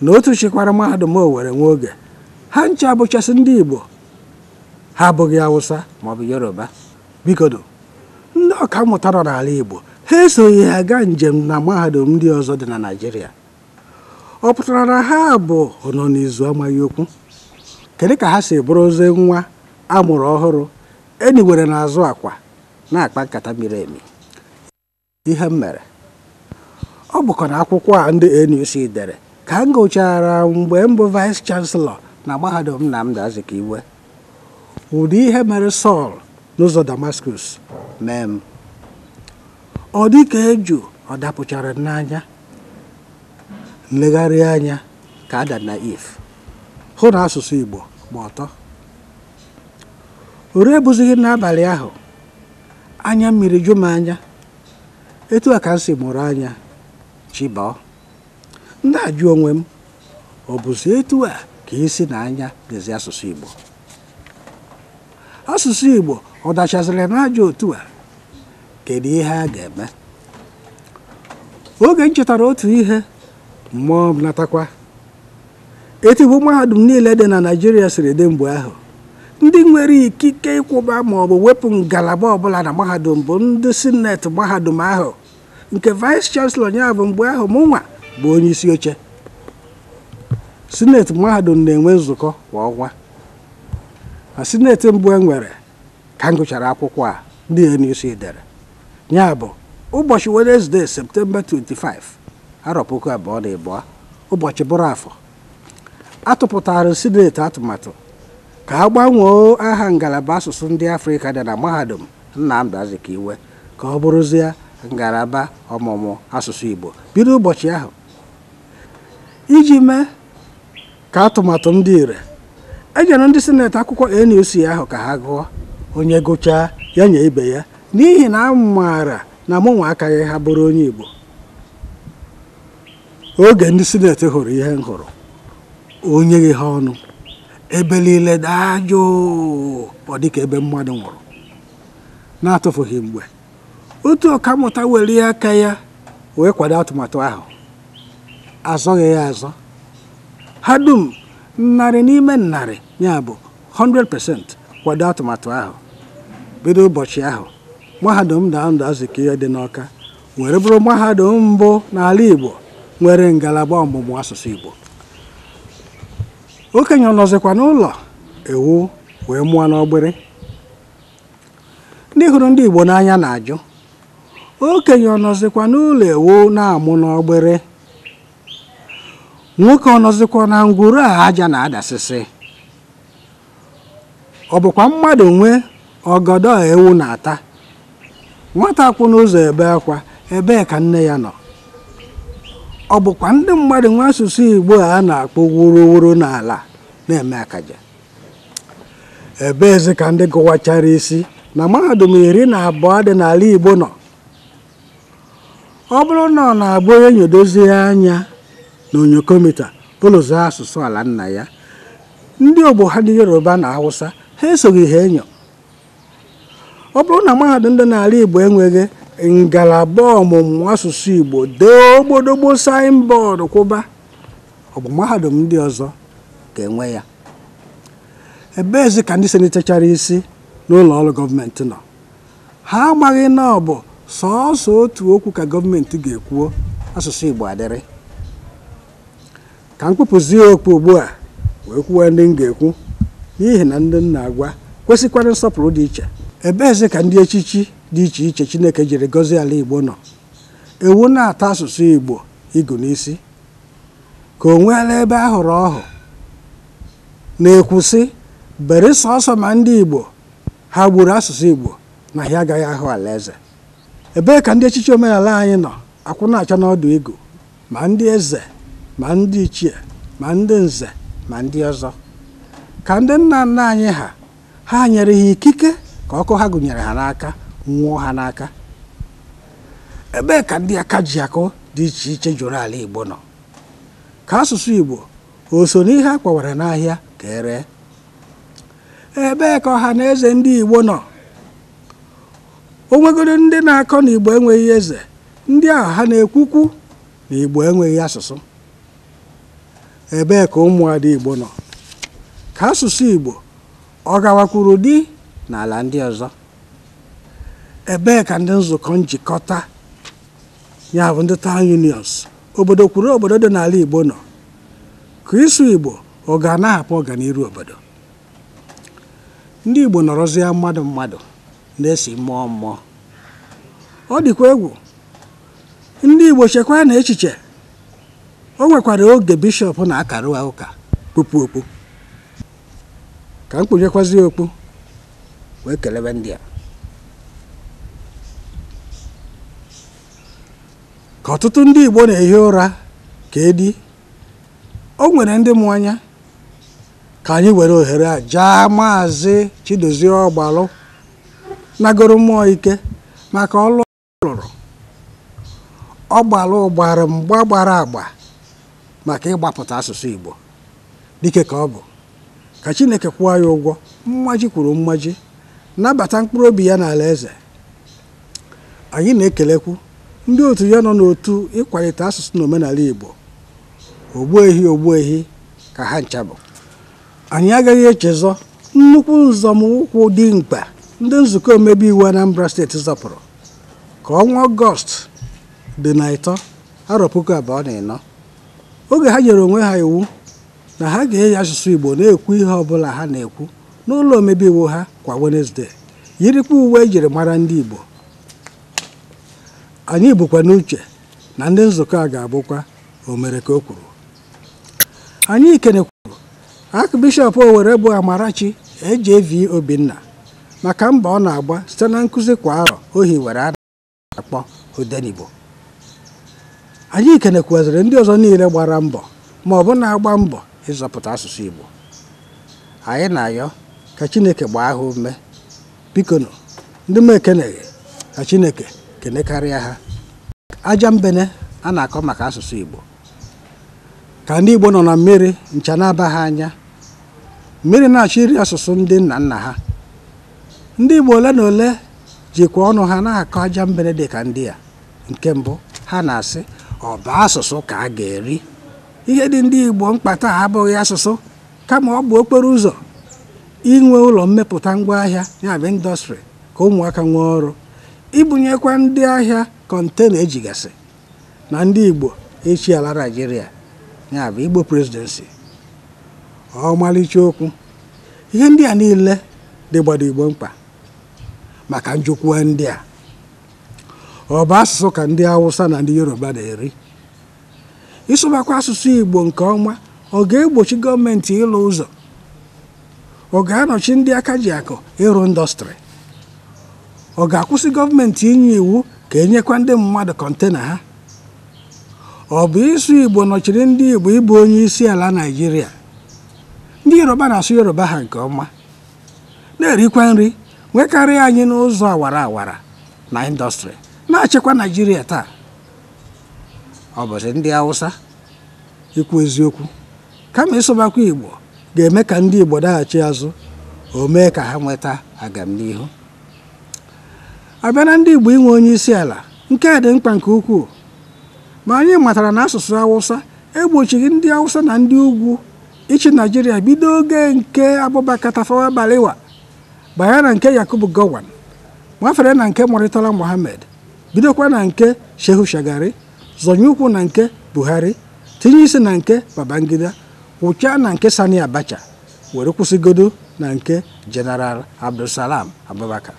na otu chịkwara mahadum owere nwa oge ha ncha bụchasị ndị Igbo ha abụghị Awụsa maọbụ Yoruba bikodo ndị ọka mmụta n'ala Igbo ha esoghị ha gaa njem na mahadum ndị ọzọ dị na Naịjirịa ọ pụtara na ha bụ nọ n'izu amaghị okwu kedu ka ha si bụrụzie nwa amụrụ ọhụrụ enyiwere n'azụ akwa na-akpa nkata miri emi ihe m mere ọ bụkwa na akwụkwọ a ndị NUC dere ka m gụchara mgbe mbụ vice chancellor na mahadum Nnamdi iwe. ụdị ihe mere Sọl n'ụzọ damaskus mee m ọ dị ka eju ọ dapụchara n'anya nlegharị anya ka ada na if hụ na asụsụ Igbo gba ọtọ ore ebụzighị n'abalị ahụ anya mmiri jụ m anya etu a ka m si mụrụ anya chibọ ndị onwe m ọ bụzi etu a ka isi e na anya dịzi asụsụ Igbo asụsụ Igbo ọ dachaziri n'ajọ otu a kedu ihe a ga-eme oge m chetara otu ihe mmụọ m natakwa etigbo mahadum niile dị na Naijiria siri dị mgbe ahụ ndị nwere ikike ịkwụba maọbụ wepụ ngalaba ọbụla na mahadum bụ ndị sineti mahadum ahụ nke vice chancellor ya bụ mgbe ahụ mụnwa bụ onye isi oche sineti mahadum na-enwe nzukọ kwa ọnwa na sineti mbụ e nwere ka m gụchara akwụkwọ a ndị NUC dere ya ụbọchị Wednesday septemba 25 arọ puku abụọ na ịbụọ ụbọchị bụrụ afọ atụpụtara sineti atụmatụ ka a gbanwee aha ngalaba asụsụ ndị afrịka dị na mahadum Nnamdi Azikiwe ka ọ bụrụzie ngalaba ọmụmụ asụsụ Igbo bido ụbọchị ahụ iji mee ka atụmatụ ndị ire enyere ndị sineti akwụkwọ NUC ahụ ka ha gụọ onye gụchaa ya nye ibe ya n'ihi na a maara na mụnwa akaghị ha bụrụ onye Igbo oge ndị sineti hụrụ ihe m hụrụ onye gị ha ọnụ ebe niile ọ dịka ebe mmadụ nwụrụ na-atụfughị mgbe otu ọkammụta were aka ya wee kwado atụmatụ ahụ azọghị ya azọ ha dum narị n'ime narị ya bụ 100% kwado atụmatụ ahụ bido ụbọchị ahụ mahadum Nnamdi Azikiwe dị n'ọka were bụrụ mahadum mbụ n'ala Igbo nwere ngalaba ọmụmụ asụsụ Igbo okenye nọzikwa n'ụlọ ewu wee mụọ n'ọgbịrị ndị hụrụ ndị Igbo n'anya na-ajụ okenye ọ nọzikwa n'ụlọ ewu na-amụ n'ọgbịrị nwoke ọ nọzikwa na ngwuru a aja na-adasịsị ọ bụkwa mmadụ nwee ọgọdọ ewu na-ata nwata kwụ n'ụzọ ebe akwa ebee ka nne ya nọ ọ bụkwa ndị mmadụ nwe asụsụ Igbo a na-akpọ wuruwuru n'ala na-eme akaja ebe ka ndị gụwachara isi na mahadum iri na abụọ dị n'ala Igbo nọ ọ bụrụ na ọ na-agba onye nyodozie anya na onyokomita asụsụ ala nna ya ndị ogbo ha dị yoruba na hausa ha esoghị ha enyo ọ bụrụ na mahadum dị n'ala igbo enweghị ngalaba ọmụmụ asụsụ igbo dee ogbodogbo bọọdụ kwụba ọ bụ mahadum ndị ọzọ ga-enwe ya ezi ka ndị senitechara isi n'ụlọ ọrụ gọọmenti nọ ha amaghị na ọ bụ sọọsọ otu okwu ka gọọmenti ga-ekwuo asụsụ Igbo adịrị ka m kpụpụzie okpu ugbu a wee kwuwe ndị m ga-ekwu n'ihi na ndị nna agwa kwesịkwara nsọpụrụ dị iche ebeeze ka ndị echichi dị iche iche Chineke jiri gọzie ala Igbo nọ ewu na-ata asụsụ Igbo ịgụ n'isi ka o nweela ebe a hụrụ ọhụ na-ekwusị bere sọọsọ ma ndị Igbo ha gburu asụsụ Igbo na ha agaghị ahụ alaeze ebee ka ndị echiche omenala anyị nọ akwụ na-acha n'ọdụ ego ma ndị eze ma ndị ichie ma ndị nze ma ndị ọzọ ka ndị nna nna anyị ha ha nyere ha ikike ka ọkụ ha gụnyere ha n'aka nwụọ ha n'aka ebee ka ndị aka ji akụ dị iche iche jụrụ ala Igbo nọ ka asụsụ Igbo o so n'ihe a kwawara n'ahịa ka ere ebee ka ọha na eze ndị Igbo nọ o ndị na-akọ na igbo enweghị eze ndị ahụ ha na-ekwukwu na igbo enweghị asụsụ ebee ka ụmụada igbo nọ ka asụsụ igbo ọ gawakwuru dị n'ala ndị ọzọ ebee ka ndị nzukọ njikọta ya bụ ndị town unions obodo kwuru obodo dị n'ala igbo nọ ka isu igbo ọ ga na-ahapụ ọganiru obodo ndị igbo nọrọzie mmadụ mmadụ na-esi mmụọ mmụọ ọ dịkwa egwu ndị Igbo chekwaa na echiche o nwekwara oge bishọp na-akara ụka kpupu okpu ka m okpu wee kelebe ndị a ka ọtụtụ ndị Igbo na-ehi ụra ka edi o nwere ndị mụ anya ka anyị were ohere a jaa maazị Chidozie Ọgbalụ nagoro mmụọ ike maka ọlụ lụrụ ọ gbara ụgbara mgba gbara agba maka ịgbapụta asụsụ Igbo dike ka ọ bụ ka Chineke kwụọ ya ụgwọ mmaji kwuru mmaji nabata mkpụrụ obi ya n'ala eze anyị na-ekelekwu ndị otu ya nọ n'otu ịkwalite asụsụ na omenala Igbo ogbuehi ehi ka ha nchabụ anyị agaghị echezọ nnukwu nzọmụkwụ dị mkpa ndị nzukọ omebe iwu Anambra steeti zọpụrụ ka ọnwa ọgọst dị na ịtọ arọ puku abụọ na ịnọ oge ha nyere onwe ha iwu na ha ga-eyi asụsụ Igbo na-ekwu ihe ọbụla ha na-ekwu n'ụlọ omebe iwu ha kwa Wenesde yirikwa uwe ejiri mara ndị Igbo anyị bụkwa n'uche na ndị nzukọ a ga-abụkwa o mere ka o kwuru anyị kenekwuru akụ bishọp Owerre bụ Amarachi Ejevi Obinna maka mbọ ọ na-agba site na nkụzi kwa arọ ohi were a na-akpọ odenigbo anyị kenekwaziri ndị ọzọ niile gbara mbọ ma ọ bụ na-agba mbọ ịzọpụta asụsụ Igbo anyị na-ayọ ka Chineke gbaa ha ume bikono ndị m ekeneghị ka Chineke kenekarịa ha aja mbene a na-akọ maka asụsụ Igbo ka ndị Igbo nọ na mmiri ncha na-aba ha anya mmiri na-achọ iri asụsụ ndị nna nna ha ndị Igbo ole na ole jikwa ọnụ ha na-akọ aja mbere dị ka ndị a nke mbụ ha na-asị ọba asụsụ ka a ga-eri ihe dị ndị Igbo mkpata a abụghị asụsụ kama ọ bụ okporo ụzọ inwe ụlọ mmepụta ngwaahịa ya bụ indọstrị ka ụmụaka nwee ọrụ ibunyekwa ndị ahịa kọntena ejigasị na ndị Igbo echi ala naijiria ya bụ Igbo presidensi ọmalịcha okwu ihe ndị a niile dịgbado Igbo mkpa maka njikwa ndị a ọ bụ asụsụ ka ndị Awụsa na ndị Yoruba na-eri ịsụbakwa asụsụ Igbo nke ọma ọ ga-egbochi gọọmenti ịlụ ụzọ ọ ga-anọchi ndị aka ji akụ ịrụ ndọstrị ọ ga-akwụsị gọọmenti inye iwu ka enyekwa ndị mmadụ kọntena ha ọ bụ ịsụ Igbo nọchiri ndị Igbo ịbụ onye isi ala Naịjirịa ndị Yoruba na-asụ Yoruba ha nke ọma na-erikwa nri nwekarị anyị n'ụzọ awara awara na indọstrị na-achịkwa naijiria taa ọ bụzi ndị hausa ikwu eziokwu kama ịsụbakwa igbo ga-eme ka ndị igbo daghachi azụ o mee ka ha nweta agamnihu abịa na ndị igbo inwe onye isi ala nke a dị mkpa nke ukwuu ma anyị matara na asụsụ awụsa egbochighị ndị awụsa na ndị ugwu ịchị naijiria bido oge nke abụbakatafawa balewa gbagha na nke yakubu gowan nwafere na nke murtala mohammed bidokwa na nke shehu shagari zọnye ụkwụ na nke buhari tinye isi na nke babangida wụchaa na nke sani abacha were kwụsịgodo na nke jeneral abdulsalam abubakar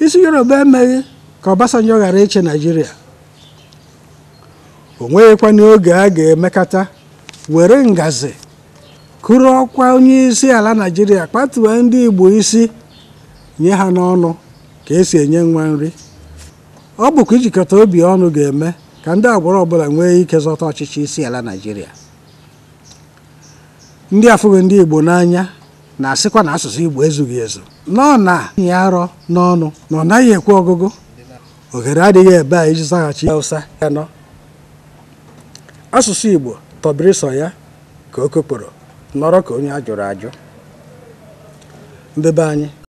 isi yoruba emeghị ka obasanjo ghara iche naijiria o nweghịkwa n'oge a ga-emekata were ngazi kụrụ ọkwa onye isi ala naijiria kpatuwe ndị igbo isi nye ha n'ọnụ ka esi enye nwa nri ọ bụkwa ijikọta obi ọnụ ga-eme ka ndị agbụrụ ọbụla nwee ike zọta ọchịchị isi ala naijiria ndị afụghị ndị igbo n'anya na-asịkwa na asụsụ igbo ezughị ezu nọ na ya arọ n'ọnụ na ọ naghị ekwe ọgụgụ ohere adịghị ebe a iji zaghachi ụsa ya nọ asụsụ igbo tọbiri sọ ya ka o kokporo nọrọ ka onye a jụrụ ajụ mbebe anyị